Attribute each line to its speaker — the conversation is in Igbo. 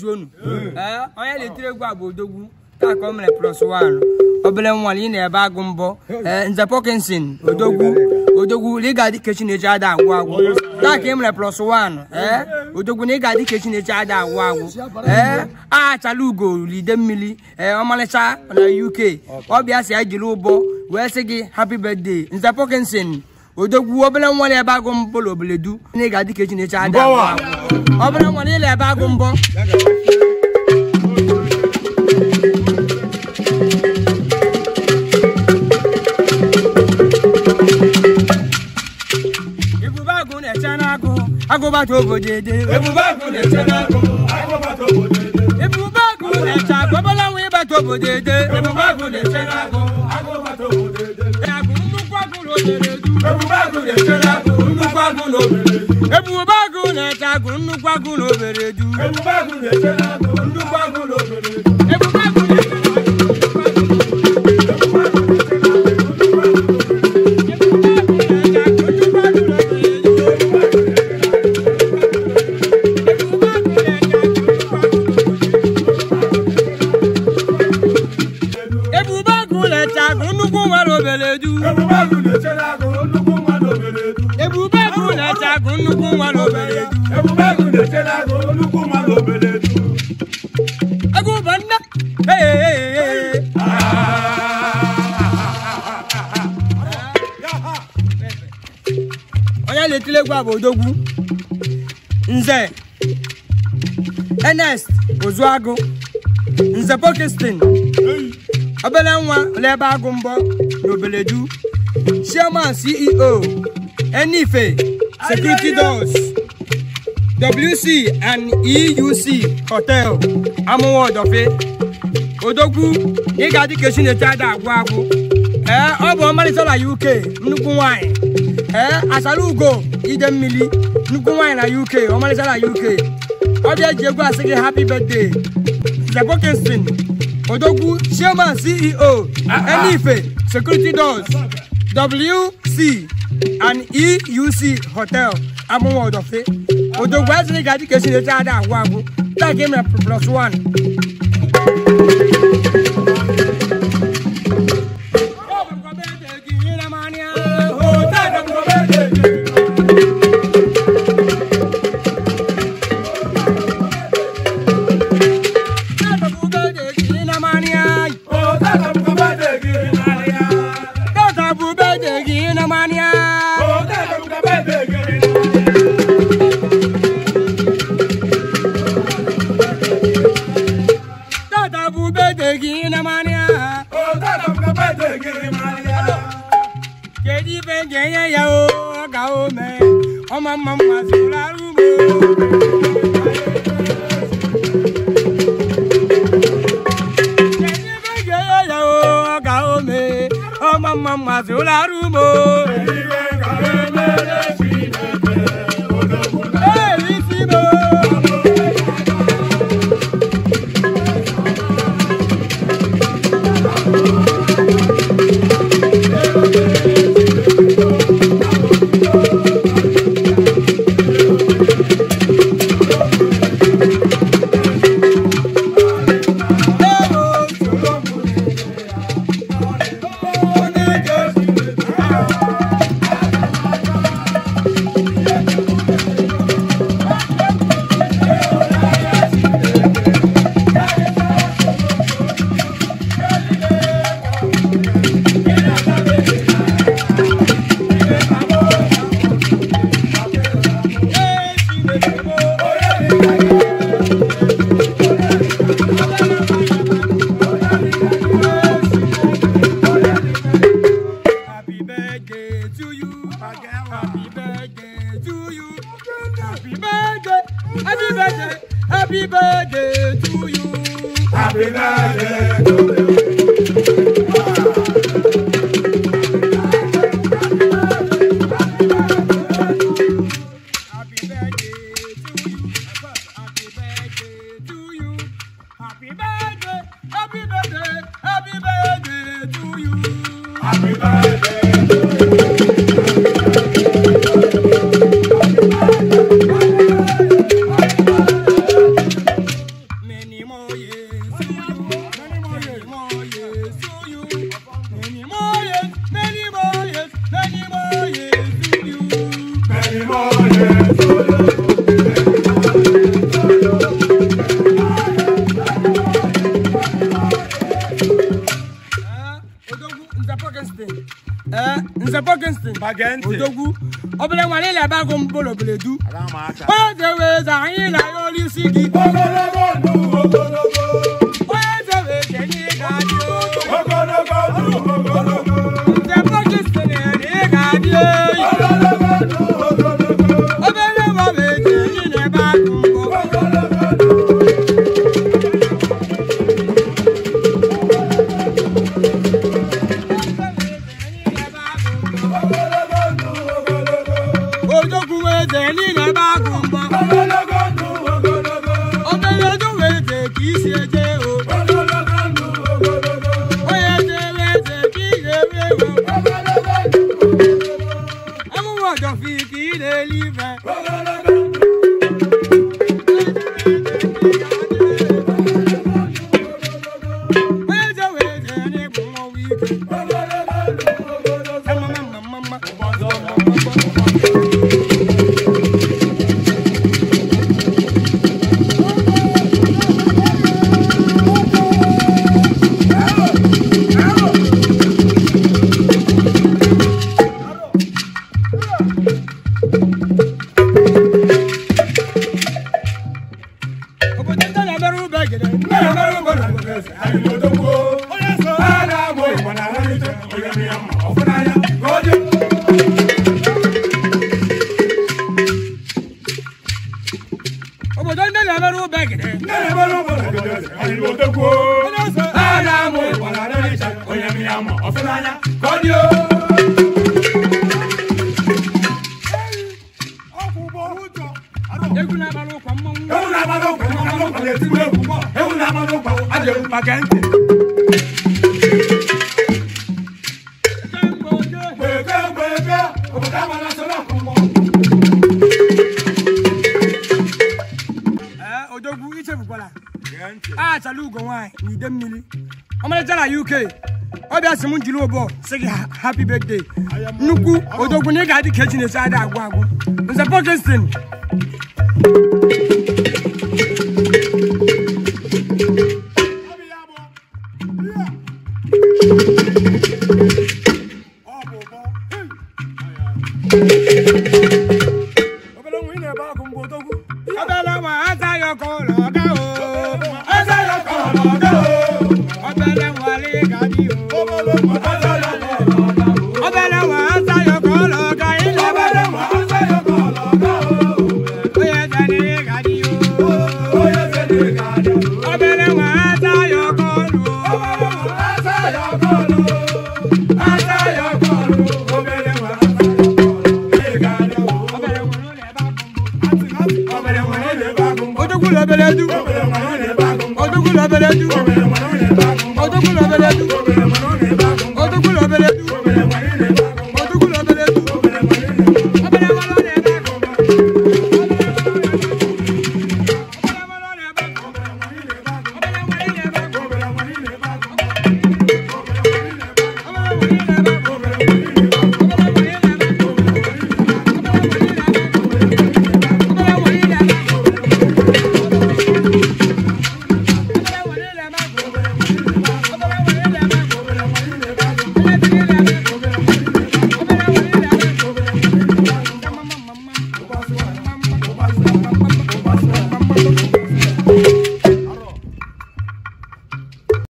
Speaker 1: Eh, onye na-etiri egwu a odogwu taa omere mere obere ị na-ebe agụ mbọ eh, nze odogwu odogwu na ị ga-adị na-eji ada agwụ agwụ taa ka ị mere ee odogwu na ị ga-adị ka Chineche ada agwụ agwụ oh, ee eh, ugo lide mmiri ee ọmalịcha na UK ọbịa si ya jiri ụbọ wee sị gị hapi birthday nze pọkinson odogwu obere nwa na ebe agụ mbọ na du na ị ga-adị ka echi na-eche ada obere nwa ebe agụ mbọ agụbata na-eche ebube agụ na-ete agụ nnukwu agụ na obere du olùkún wa ló bẹ̀rẹ̀ jù. bẹ́ẹ̀ kò lè ṣe láàrú olùkún wa ló bẹ̀rẹ̀ jù. ẹkún bá ń ná. ọ̀yá lè tilé gba àbòdógún nze ernest ozuagu nze pokistin obele nwa lebe agụ mbọ n'obeledu chairman ceo enife security doors WC and EUC hotel amụwa ọdọfe odogwu ị ga-adị ka esi na-ete ada agwụ agwụ Eh, ọ bụ ọmalịcha na UK nnukwu nwanyị ee asara ugo ide mmiri nnukwu nwanyị na UK ọmalịcha na UK ọ bịa ji egwu say gị happy birthday Kingston. Odogu, chairman CEO Elife security doors WC an EUC hotel amuwa odofe odogbo asini gaji kesi leta ada agwo agwo take me plus one. ẹyẹ yẹ o ọ̀gá o mẹ ọmọ mọ mọ àsìkò arúgbó. ọmọ mama mọ àsìkò arúgbó. ẹ̀yin bẹ́ẹ̀ kàwé mẹ́rin. Eh, nze Parkinson odogwu obere nwere ile ebe agụ m bolo beledu onye ga-eweza anyị na ya olu isi gị Brother obodo ndị na-emerụ ube gị na-emerụ obodo gị anyị otekwuo a na-amụ ịkwara n'ịcha onye m ya ma ọfụnanya ka ọ dị egwu na-agbara ụkwa mmanwụ ewu na-agbara ụkwa mmanwụ ewu na-agbara ụkwa ajọ maka ntị mmiri ọmalịcha na uk ọ bịa sị m jiri ụbọ happy birthday nnukwu odogwu na ị ga-adị ka echi na adị agwụ agwụ nze pọkestin odogwu lobeledu odogwu lobeledu